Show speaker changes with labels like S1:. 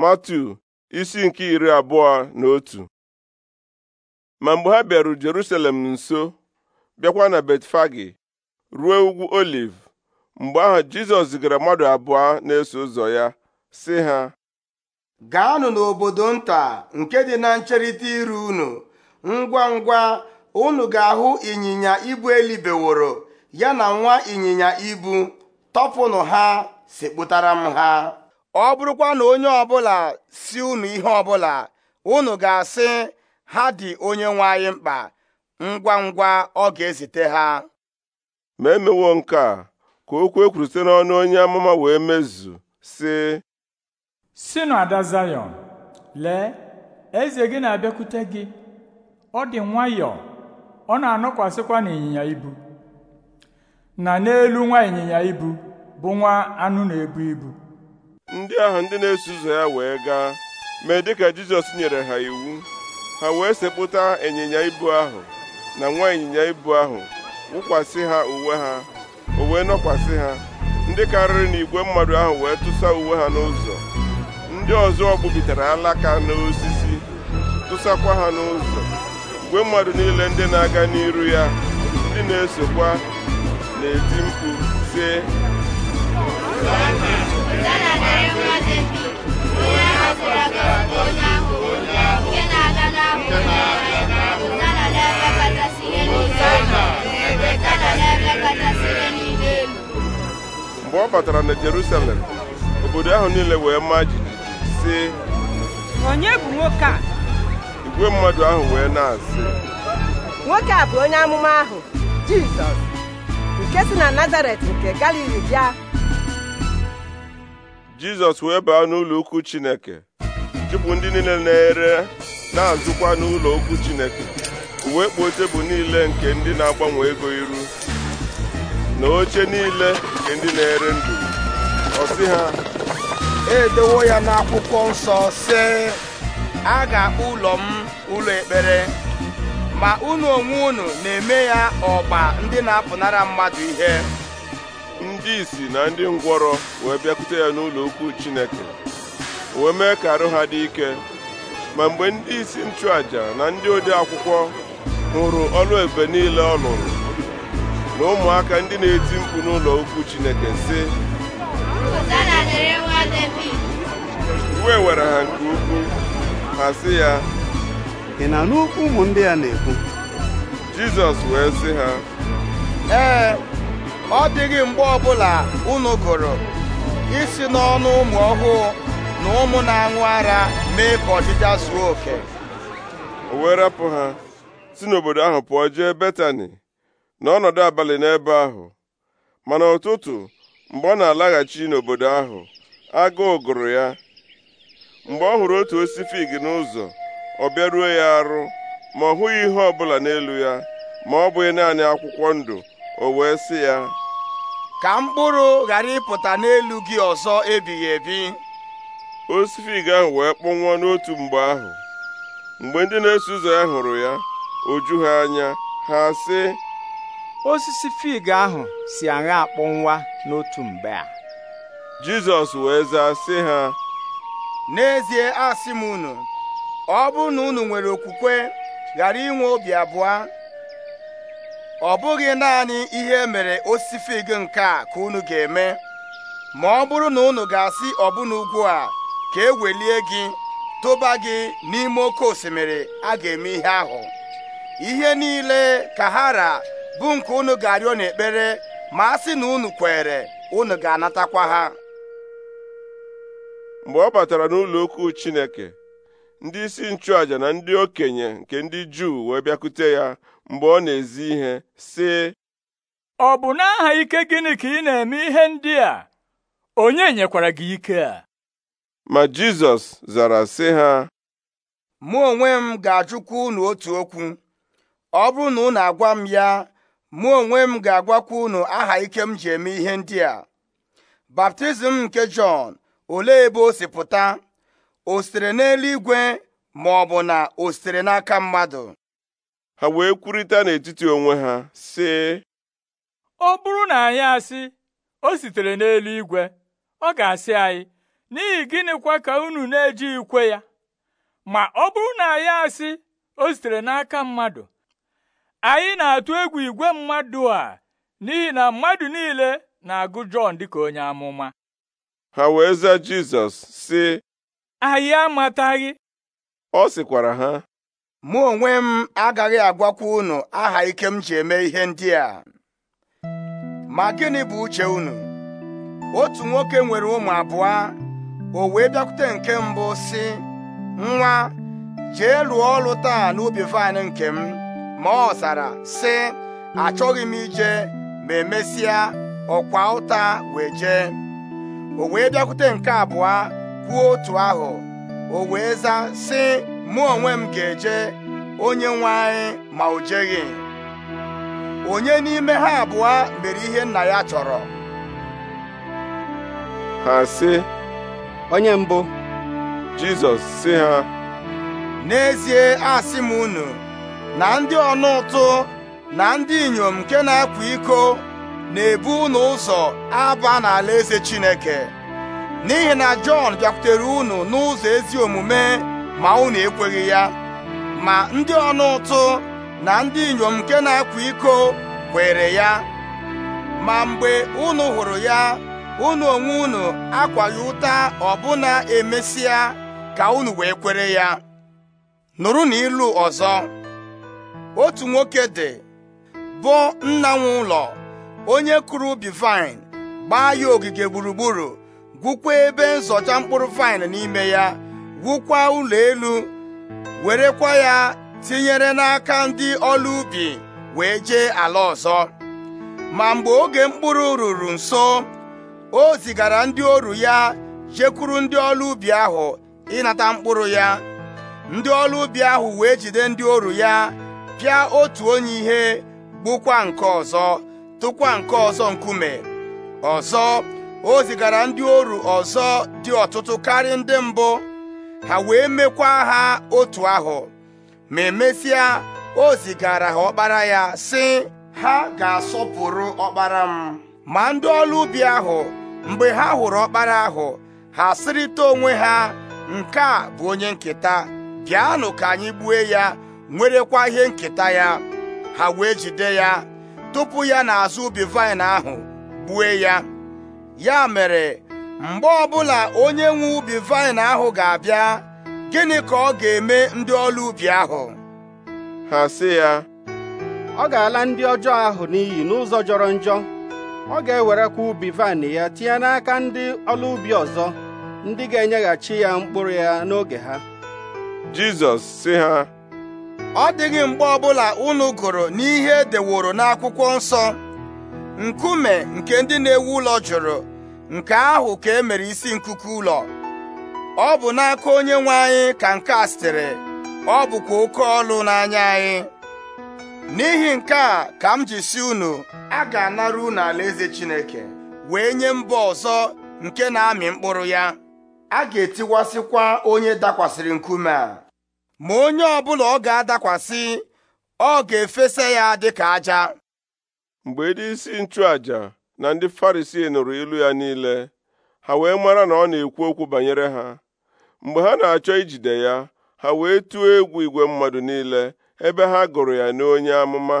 S1: matu isi nke iri abụọ na otu ma mgbe ha bịaru Jerusalem nso bịakwa na Betfagi ruo ugwu Oliv mgbe ahụ Jizọs zigara mmadụ abụọ na-eso ụzọ ya sị ha
S2: gaanụ n'obodo nta nke dị na ncherịta iru unu ngwa ngwa unu ga-ahụ ịnyịnya ibu elibeworo ya na nwa ịnyịnya ibu tọpụnụ ha sikpụtara m ha ọ bụrụkwa na onye ọbụla si unu ihe ọbụla unu ga-asị ha dị onye nwe anyị mkpa ngwa ngwa ọ ga-ezite ha ma emewo nke
S1: a ka okwu ekwuru site n'ọnụ onye amụma wee mezu sị
S2: si na ada Zayọn lee eze gị na-abịakwute gị ọ dị nwayọọ ọ na-anọkwasịkwa n'ịnyịnya ibu na n'elu nwa ịnyịnya ibu bụ nwa anụ na-ebu ibu ndị ahụ ndị na-eso
S1: ụzọ ya wee gaa mee ka Jizọs nyere ha iwu ha wee sepụta ịnyịnya ibu ahụ na nwa ịnyịnya ibu ahụ wụkwasị ha uwe ha o nọkwasị ha ndị karịrị na igwe mmadụ ahụ wee tụsa uwe ha n'ụzọ ndị ọzọ gbubitere alaka n'osisi tụsakwa ha n'ụzọ igwe mmadụ niile ndị na-aga n'iru ya ndị na-esokwa na-eti mkpu sị mgbe ọ batara na Jerusalem obodo ahụ niile wee maa jijiji si.
S2: onye bụ nwoke a
S1: igwe mmadụ ahụ wee na-asị
S2: nwoke a bụ onye amụma ahụ Jizọs nke si na Nazaret nke Galili bịa
S1: jizọs wee baa n'ụlọ ukwu chineke chụpụ ndị niile na-ere na-azụkwa n'ụlọ ukwu chineke uwe kpuo tebụl niile nke ndị na-agbanwe ego iru na oche
S2: niile nke ndị na-ere ndụ ọ sị ha edewo ya n'akwụkwọ nsọ sị a ga-akpọ ụlọ m ụlọ ekpere ma unu onwe unu na-eme ya ọgba ndị na-apụnara mmadụ ihe
S1: ndị isi na ndị ngwọrọ wee bịakwute ya n'ụlọ ukwu Chineke wee mee ka arụ ha dị ike ma mgbe ndị isi nchụaja na ndị ode akwụkwọ hụrụ ọlụ ebe niile ọ lụrụ na ụmụaka ndị na-eti mkpu n'ụlọ ukwu Chineke sị iwe were ha nke ukwuu ha sị ya ị na ụmụ ndị a na-ekwu Jizọs wee sị ha
S2: ee ọ dịghị mgbe ọbụla unu gụrụ isi n'ọnụ ụmụ ọhụụ na ụmụ na-aṅụ ara mee ka ọdịda zuo oke o wee rapụ
S1: ha si n'obodo ahụ pụọ jee Betani n'ọnọdụ abalị n'ebe ahụ mana ụtụtụ mgbe ọ na-alaghachi n'obodo ahụ agụụ gụrụ ya mgbe ọ hụrụ otu osisi fig n'ụzọ ọ bịaruo ya arụ ma ọ hụghị ihe ọbụla n'elu ya ma ọ bụghị naanị akwụkwọ ndụ o wee sị ya ka mkpụrụ ghara ịpụta n'elu gị ọzọ ebighị ebi osisi fig ahụ wee kpọnwụọ n'otu mgbe ahụ mgbe ndị na-eso ụzọ ya hụrụ ya o ha anya
S2: ha sị osisi fig ahụ si aṅa nwa n'otu mgbe a jizọs wee zaa sị ha n'ezie asị m unu ọ bụrụ na unu nwere okwukwe ghara inwe obi abụọ ọ bụghị naanị ihe mere osisi fig nke a ka unu ga-eme ma ọ bụrụ na unu ga-asị ọbụna ugwu a ka e welie gị tụba gị n'ime oke osimiri a ga-eme ihe ahụ ihe niile ka ha ra bụ nke unu ga-arịọ n'ekpere ma a sị na unu kwere unu ga-anatakwa ha mgbe ọ batara
S1: n'ụlọ okwu Chineke ndị isi nchụàjà na ndị okenye nke ndị Juu wee bịakute ya mgbe ọ na-ezi ihe sị ọ bụ n'aha ike gịnị
S2: ka ị na-eme ihe ndị a onye nyekwara gị ike a
S1: ma Jizọs zara sị ha
S2: mụ onwe m ga-ajụkwa unu otu okwu ọ bụrụ na unu agwa m ya mụ onwe m ga-agwakwa unu aha ike m ji eme ihe ndị a baptizim nke Jọn olee ebe o si pụta o sitere n'eluigwe ma ọ bụ na o sitere n'aka mmadụ ha wee kwurịta n'etiti onwe ha sị ọ bụrụ na anyị asị o sitere n'eluigwe ọ ga-asị anyị n'ihi gịnịkwa ka unu na-eji ikwe ya ma ọ bụrụ na anyị asị o sitere n'aka mmadụ anyị na-atụ egwu igwe mmadụ a n'ihi na mmadụ niile na-agụ Jọn dịka onye amụma
S1: ha wee zaa Jizọs sị
S2: anyị amataghị ọ sịkwara ha mụ onwe m agaghị agwakwa unu aha ike m ji eme ihe ndị a ma gịnị bụ uche unu otu nwoke nwere ụmụ abụọ o wee bịakwute nke mbụ si, nwa jee lụọ ọrụ taa n'ubi vaịn nke m ma ọ zara si: achọghị m ije ma emesịa ọkwa ụta wee jee o wee bịakwute nke abụọ kwuo otu ahụ o wee za, sị mụ onwe m ga-eje onye nwe anyị ma o jeghị onye n'ime ha abụọ mere ihe nna ya chọrọ ha sị onye mbụ Jizọs sị ha n'ezie asị m unu na ndị ọnụ ụtụ na ndị inyom nke na-akwa iko na-ebu unu ụzọ aba n'alaeze Chineke n'ihi na Jọn bịakwutere unu n'ụzọ ezi omume ma unu ekweghị ya ma ndị ọnụ ụtụ na ndị inyom nke na-akwa iko kwere ya ma mgbe unu hụrụ ya unu onwe unu akwaghị ụta ọbụna emesịa ka unu wee kwere ya nụrụ na ilu ọzọ otu nwoke dị bụ nna nwe ụlọ onye kụrụ ubi gbaa ya ogige gburugburu gwukwa ebe nzọcha mkpụrụ vaịn n'ime ya gwukwa ụlọ elu werekwa ya tinyere n'aka ndị ọlụ ubi wee jee ala ọzọ ma mgbe oge mkpụrụ ruru nso o zigara ndị oru ya jekwuru ndị ọlụ ubi ahụ ịnata mkpụrụ ya ndị ọlụ ubi ahụ wee jide ndị oru ya pịa otu onye ihe gbukwa nke ọzọ tụkwa nke ọzọ nkume ọzọ o zigara ndị oru ọzọ dị ọtụtụ karịa ndị mbụ ha wee mekwa ha otu ahụ ma emesịa o zigara ha ọkpara ya sị ha ga-asọpụrụ ọkpara m ma ndị ọrụ ubi ahụ mgbe ha hụrụ ọkpara ahụ ha sịrịta onwe ha nke a bụ onye nketa bịanụ ka anyị gbue ya nwerekwa ihe nketa ya ha wee jide ya tupu ya n'azụ ubi vaịn ahụ gbue ya ya mere mgbe ọbụla onye nwe ubi vaịn ahụ ga-abịa gịnị ka ọ ga-eme ndị ọlaubi ahụ ha sị ya ọ ga-ala ndị ọjọọ ahụ n'iyi n'ụzọ jọrọ njọ ọ ga-ewerekwa ubi vaịn ya tinye n'aka ndị ọlaubi ọzọ ndị ga-enyeghachi ya mkpụrụ ya n'oge ha Jizọs si ha ọ dịghị mgbe ọbụla unu gụrụ n'ihe e deworo n'akwụkwọ nsọ nkume nke ndị na-ewu ụlọ jụrụ nke ahụ ka e mere isi nkuku ụlọ ọ bụ n'aka onye nwe anyị ka nke a sitere ọ bụkwa oke ọlụ n'anya anyị n'ihi nke a ka m ji si unu a ga-anara unu alaeze Chineke wee nye mba ọzọ nke na-amị mkpụrụ ya a ga-etiwasịkwa onye dakwasịrị nkume a ma onye ọbụla ọ ga-adakwasị ọ ga-efesa ya dịka aja mgbe ndị isi nchụàjà na
S1: ndị farisi nụrụ ilu ya niile ha wee mara na ọ na-ekwu okwu banyere ha mgbe ha na-achọ ijide ya ha wee tụọ egwu igwe mmadụ niile ebe ha gụrụ ya n'onye amụma